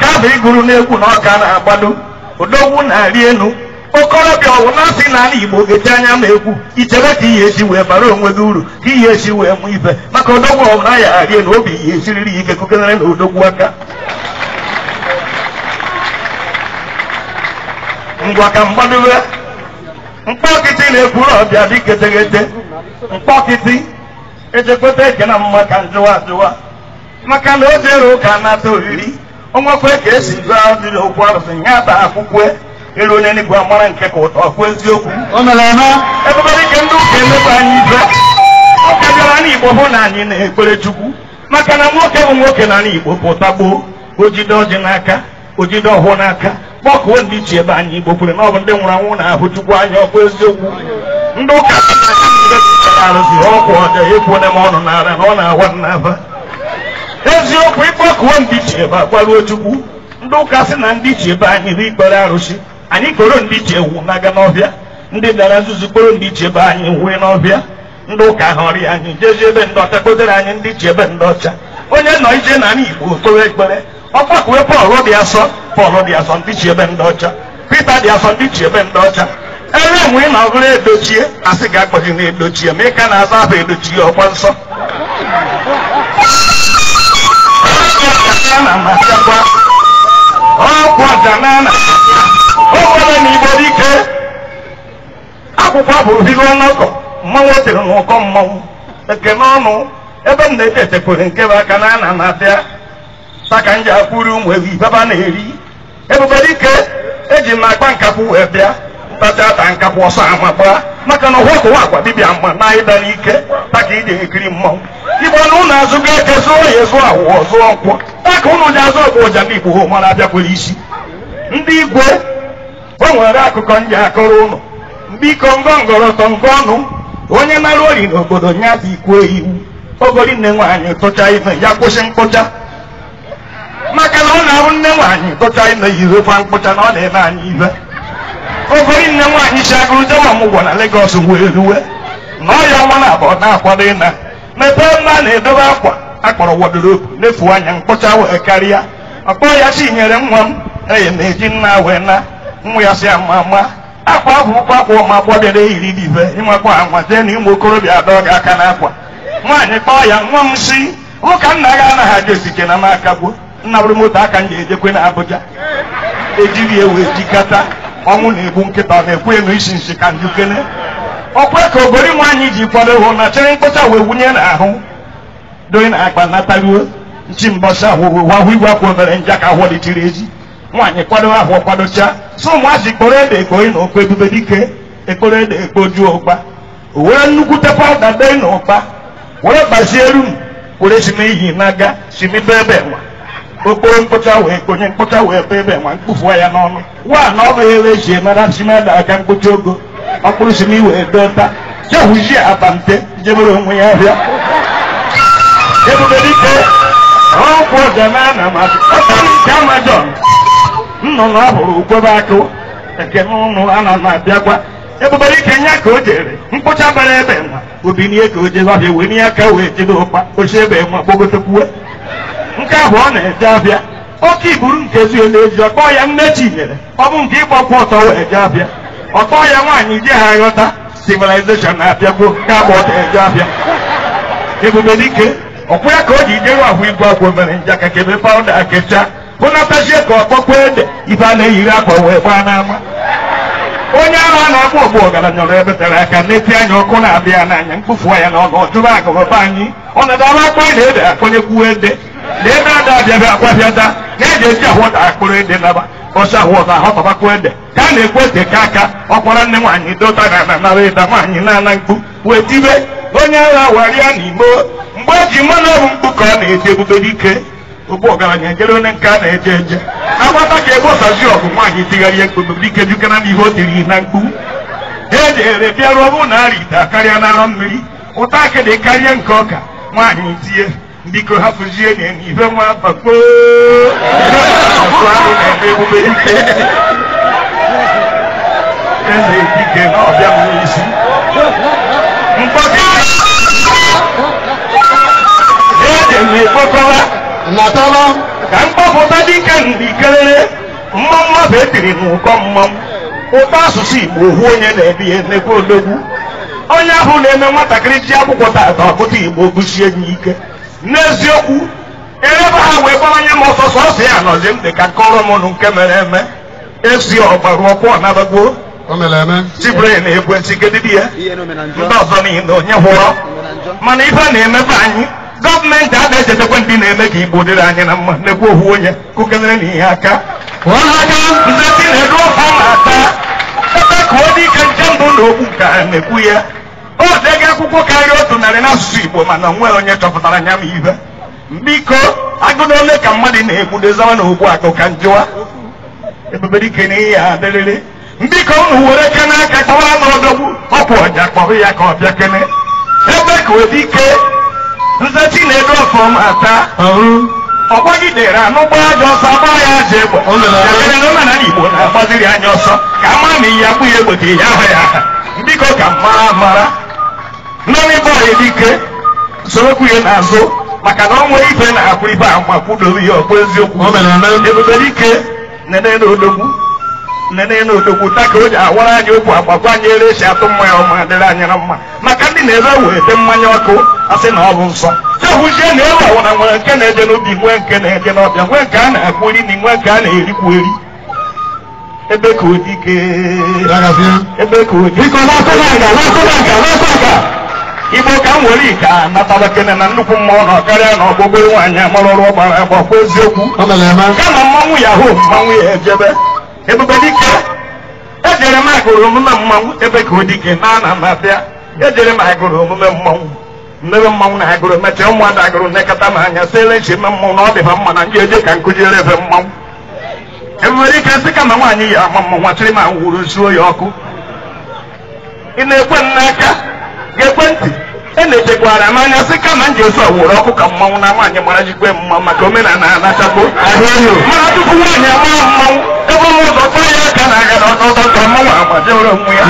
ka abụ iguru n'egwu na ọka na-agbado odogwu na-arị elu okorobịa ọwụ na-asị n'ala igbo ga anya na egwu ichebe ka ihe esi wee bara onwe gị uru ka ihe esi wee mụ ibe maka odogwu ọwụ na ya arị elu obi ihe esiriri ike kokenere na odogwu aka ngwa ka mgbadobe mkpọkịtị na-ekwuru ọbịa dị getegete mkpọkịtị ejekweta eke na mma ka njụwa ajụwa maka na o jere ụka ata oriri onwekwe ka esi gụọ mmiri okwu arụsị ya bụ akwụkwọ ịrụ onye n'igwe amara nke ka ụtọ kwuo eziokwu ebebere ike ndị ụka emekwa anyị ibe ọ bịara na igbo bụ na anyị na-ekpere chukwu maka na nwoke bụ nwoke na igbo pụta gboo ojide ọjị n'aka ojide ọhụụ n'aka kpọkuo ndị iche ebe anyị igbo kwere na ọ bụ ndị nwụrụ anwụ na-ahụ chukwu anya ọkụ eziokwu ndị ụka arụsị ọkwụ ọja ekwuo na m ọnụ n'ala na ọ na-awa n'aba eziokwu ịkpọkuo ndị chi ebe agbaruo chukwu ndị ụka sị na ndị chi ebe anyị ri ikpere arụsị anyị kporo ndị chi ewu n'aga n'ọbịa ndị bịara nzuzu kporo ndị chi ebe anyị wee n'ọbịa ndị ụka ha ọrịa anyị jezie ebe ndị ọcha kpotere anyị ndị chi ebe ndị ọcha onye nọ ije na anyị igbo kpere ekpere ọkpa kuwe pọl dị asọ pọl dị asọ ndị chi ebe ndị ọcha pita dị asọ ndị chi ebe ndị ọcha ebe enwe na-ọgụrụ edochie asị ga-akpọghị na edochie ma ị na-azụ afọ edochie ọkwa nsọ na amasịakwa ọkụ ọjana na ụfọdụ na igbo dike akwụkwọ bụ ohiri ọnọkọ mmanwụ tere n'ụkọ mmanwụ ekene ọnụ ebe m na-eche echekwere nke bụ aka na ana na-abịa taka nji akwụri ụmụ ewu ibeba na-eri ebube dike eji m akpa nkakwu wee bịa ntacha ata nkakwu ọsọ ama gbaa maka na ụwa kụwa akwa dibịa mma na ịda n'ike taka ịdị ekiri mmanwụ igbo na ụlọ azụgo eke zụọ ya zụọ awụọ zụọ nkwọ ya ụnụ ji azụ ọgụ ụja bụ igbo ha mara abịakwere isi ndị igwe onwere akụkọ ndị akọrọ ụnụ biko ngọngọrọ tọ ngọ ọnụ onye nara ori n'obodo nya dị ikwu iwu ogori nne nwaanyị tụcha ime ya kwụsị mkpụcha maka na ọ na arụ nne nwaanyị tụcha ime yirokwa mkpụcha na ọ na-eme anyị ibe ogori nne nwaanyị si agụrụ jewa na legos wee ruwe na ọ ya na abọ na-akwado ịna mepee mma na-edobe akwa akpọrọ wọdrobu n'efu anya mkpọcha wee karịa ọkpọ ya si nyere nwa m eye na-eji nna wee na nwa ya si ama ama akwa ahụ ụkwa akwa ụmụ agbọbịara eyiri dibe ịnwekwa anwa jee na ụmụ okorobịa adọ gị aka n'akwa nwaanyị kpọọ ya nwa m si ụka nna gị anaghị aja esike na m akagbuo nna bụrụ moto aka m ga-ejekwe na abụja ejiri ewe ejikata. ọnwụ na-egbu nkịta na-ekwu enu isi nsi ka njikene okwe ka ogori nwaanyị ji kwado hụ na chere mkpọcha wee wunye n'ahụ doyin akpa natariwo nchi mbọchị ahụhụ wahụ igwe akwụ mere njọ aka ahụ dịtiri eji nwaanyị kwado ahụ kwadocha so ụmụazị kporo ebe ekpoyi na okpo ebube dike ekporo ede ekpo juo ụkpa were nnukwu te pawuda dee na ụkpa were gbazie rum were si n'ihi n'aga si okporo mkpụcha wee konye mkpocha wee be ebe nwa ya n'ọnụ nwa na ọnụ ya wee ji mara simeda aka mkpụcha ogo ọkpụrụ si n'iwe dota jehụzie abante jebere onwe ya bịa ebube dike ọkwụ ọdeme a na-amasị ọkpọrọ nke amajọn nnụnụ ọhụrụ ukwebe akụ nke n'ụnụ a na-abịakwa na ebube dike nya ka o jere mkpụcha bara ebe nwa obi n'ihe ka o jebe abịa wee n'ihe ka wee jebe ụkpa oche ebe nwa gbogotekwuwe nke ahụ ọ na-eje abịa oke iburu nke ezughị n'ezi ọkpọ ya nne chinyere ọ bụ nke ịgbakwu ọtọ wee je abịa ọkpọ ya nwaanyị je ha ghọta civilization na-abịakwuo ka agba e ọtọ eje abịa ebube dike ọkwụ ya ka o ji jewe ahụ igwe akwụ mere nja ka kebe pawụda akecha hụnatazie ka ọkpọkwa ede ife a na-eyiri akwa wee gbaa n'ama onye ahụ a na-akpọ ọgbụ ọgaranya ọrụ ebe tere aka na-eti anya ọkụ na-abịa n'anya mkpofu ya na ọnụ ọjụrụ agụrụba anyị ọ na-adaba akpa na ede akpọnye kwuo ede na ebe ada abịabịa akwabịada na-eji eji ahụ ụta akpụrụ ede naba ọsọ ahụ ụta ahụ tabakwa ede ka a na ekwe ete ka aka ọkwara nne nwaanyị dota na ananara ịda nwaanyị na-ana mkpu wee tibe onye agha warịa na igbo mgbe eji mmanụ ọbụ mkpu ka ọ na-eti ebube dike ogbu ọgaranya jere onye nke a na-eje eje agbata ka egbosazi ọgụ nwaanyị tigharịa mkpu ebubedike jukana n'ihe o tiri na mkpu ejere bịaruo ọbụ na arị ite na n'arọ mmiri ụta dị karịa nke ọka nwaanyị tie biko hapụzie na ibe nwa bakpo ahụ na-eme ebube eze dike e na ọbịa n'isi mkpọtụ eme gbọkọwa natala ka mgbapụta dịka mbikelele mma mmadụ etiri n'ụkọ mmanwụ ụtọ asụsụ igbo ohu onye na-ebi emekwa odogwu onye ahụ na-eme nwatakịrị ji akwụkwọ tata ọkpụta igbo gụsie ya ike n'eziokwu eleba ha wee gbawanye m ọsọ sọsọ ya nọzi m dị ka kọrọ m nụ nke mere eme esi ọgbara ọkwụ ọnabagbuo chibren ekwentị kedidi ya ndị ọzọ niile onye hụrọ mana ife a na-emepe anyị gọọmenti ada echetakwa ndị na-eme ka igbo dịrị anyị na mma ekwu ohu onye kụkelere na ihe aka nsasị na-eru ọha na-ata ebe ka ọ dị ike nje mbụ na okwu ka a na-ekwu ya o oh, dega akwụkwọ karịa otu narị n'asụsụ igbo mana onwe onye chọpụtara nya m ibe biko agụ na ka mmadụ na-egbudozawa na okwu akụ ka njụwa ebubedike na ihe adịrịrị biko unu were ke n'aka kpọwa n'ọdọgbu ọkwụ ọja kpọrọ ya ka ọ bịa kene ebe ka ọ ike nzechi na-edu ọfọm ata ọgbagidere anụgba aja ọsọ agba ya aja egbe dabere na ụmana igbo na-agbaziri anya ọsọ ka ama ma ihe akpụ ya egbote ya ahụ ya biko ka mara mara nọrị bọyị dike sorokwu ya n'azụ maka na ọnwa ife na-akwụ ibe agba kwudoro ya ọkpụ eziokwu ebube dike nene na odogwu nene n'odokwuta ka o ji awara anyị okwu agbakwa anyị ere esi atụ mmanya ọma adịrị anyị na mma maka ndị na-ere wete mmanya ọkụ asị na ọ bụ nsọ jehụzie na elu awara nwere nke na-eje n'ubi nwee nke na-eje n'ọbịa nwee nke a na-akpụ iri na nwee nke a na-erikwu eri ebe ka odike ebe ka odike igbo ka m were ike natara kene na nnukwu mmụọ na karịa na ọgbụgbọ nwaanyị amarọrụ ọgbara agba kwa eziokwu kama mmanwụ mmanwụ ya ejebe ebube dike ejere m agụrụ omume mmanwụ ebe ka o dike na ana m abịa ejere m agụrụ omume mmanwụ mmebe mmanwụ na agụrụ mechaa ụmụada agụrụ nekọta m anya siele nche me mmanwụ na ọ dị mma na ndị eje ka nkụjiere ebe mmanwụ ebube dike sị kama nwaanyị yi ama mmanwụ achịrị m anwụrụ zuo ya ọkụ ị na-ekwe m n'aka ga-ekwe ntị e na-echekwara m anya sị kama m ji ozu ọwụrụ ọkụ ka mmanwụ na nwaanyị mara jikwe mma maka omenala na-anachapụ ahụ ehi tupu nwaanyị ama mmanwụ ọmọ mọ̀ sọ fún ẹ̀yà kan àgàlà ọ̀tọ̀ọ̀tọ̀ mọ̀ wà pàṣẹ ọ̀rọ̀ mu yà.